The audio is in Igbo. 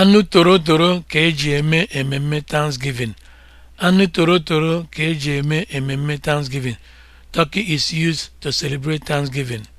Anụ torotoro ka eji eme ememme Thanksgiving. Anụ torotoro ka eji eme ememme Thanksgiving. Turkey is used to celebrate Thanksgiving.